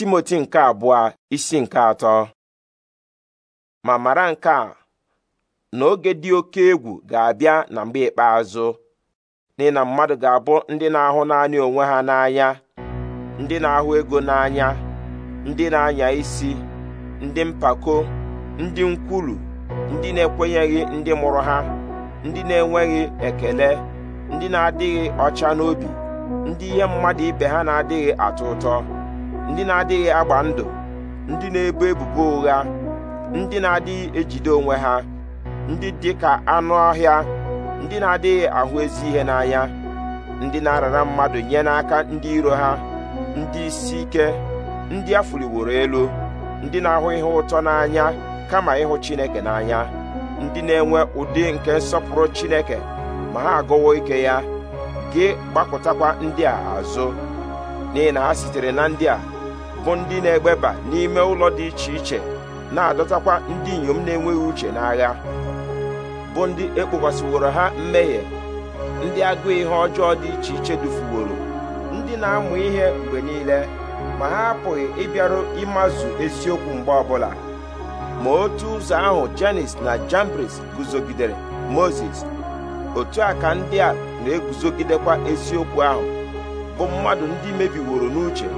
timoti nke abụọ isi nke atọ ma mara nke a na oge dị oke egwu ga-abịa na mgbe ikpeazụ ndị na mmadụ ga-abụ ndị na-ahụ naanị onwe ha n'anya ndị na-ahụ ego n'anya ndị na-anya isi ndị mpako ndị nkwulu ndị na-ekwenyeghị ndị mụrụ ha ndị na-enweghị ekele ndị na-adịghị ọcha n'obi ndị ihe mmadụ ibe ha na-adịghị atọ ụtọ ndị na-adịghị agba ndụ ndị na-ebo ebubo ụgha ndị na-adịghị ejide onwe ha ndị dị ka anụ ọhịa ndị na-adịghị ahụ ezi ihe n'anya ndị na-arara mmadụ nye n'aka ndị iro ha ndị isi ike ndị a fụliworo elu ndị na-ahụ ihe ụtọ n'anya kama ịhụ Chineke n'anya ndị na-enwe ụdị nke nsọpụrụ Chineke ma ha agụwo ike ya gị gbapụtakwa ndị a azụ n'ihi na ha sitere na ndị a bụ ndị na-egbeba n'ime ụlọ dị iche iche na-adọtakwa ndị inyom na-enweghị uche n'agha bụ ndị ekpokwasịworo ha mmehie ndị agụụ ihe ọjọọ dị iche iche dufuworo ndị na-amụ ihe mgbe niile ma ha apụghị ịbịaru ịmazụ eziokwu mgbe ọbụla ma otu ụzọ ahụ Janis na Jambres guzogidere Moses otu a ka ndị a na-eguzogidekwa eziokwu ahụ bụ mmadụ ndị mebiworo n'uche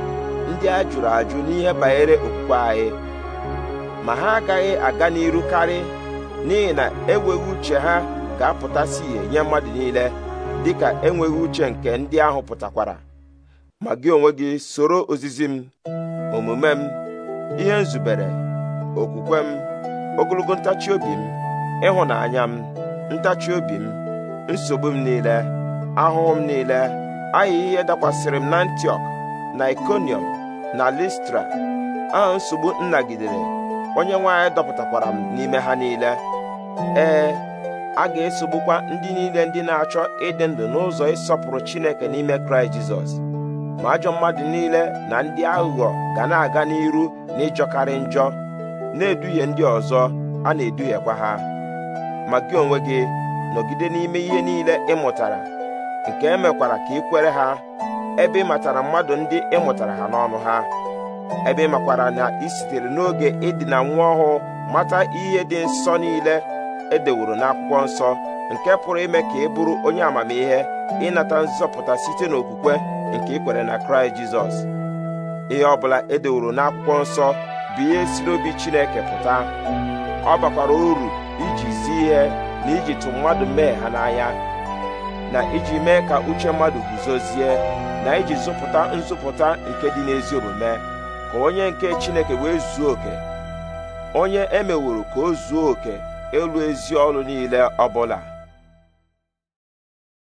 ndị a jụrụ ajụ n'ihe banyere okpukpe anyị ma ha agaghị aga n'iru karị n'ihi na enweghị uche ha ga-apụtasị ihe nye mmadụ niile dịka enweghị uche nke ndị ahụ pụtakwara ma gị onwe gị soro ozizi m omume m ihe nzubere okwukwe m ogologo ntachi obi m ịhụnanya m ntachi obi m nsogbu m niile ahụhụ m niile ahịa ihe dakwasịrị m na ntiok na ikonium. na listra a nsogbu nnagidere onye nwe anyị dọpụtakwara m n'ime ha niile ee a ga-esogbukwa ndị niile ndị na-achọ ịdị ndụ n'ụzọ ịsọpụrụ Chineke n'ime Kraịst Jizọs ma ajọ mmadụ niile na ndị aghụghọ ga na-aga n'iru na ịjọkarị njọ na-eduhie ndị ọzọ a na-eduhiekwa ha ma gị onwe gị nọgide n'ime ihe niile ị mụtara nke e mekwara ka ị kwere ha ebe ị matara mmadụ ndị ị mụtara ha n'ọnụ ha ebe ị makwara na ị sitere n'oge ịdịna nwa ọhụụ mata ihe dị nsọ niile edeworo n'akwụkwọ nsọ nke pụrụ ime ka ị bụrụ onye amamihe ịnata nzọpụta site n'okwukwe nke ikwere na kraịst jizọs ihe ọ bụla edeworo n'akwụkwọ nsọ bụ ihe si n'obi chineke pụta ọ bakwara uru iji zi ihe na iji tụ mmadụ mee ha n'anya na iji mee ka uche mmadụ guzozie na iji zụpụta nzụpụta nke dị n'ezi omume ka onye nke Chineke wee zuo oke onye emeworo ka o zuo oke elu ezi ọrụ niile ọbụla